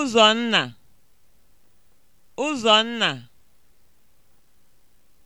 Ụzọ nna. Ụzọ nna.